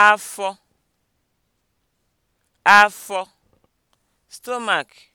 afọ afọ stomach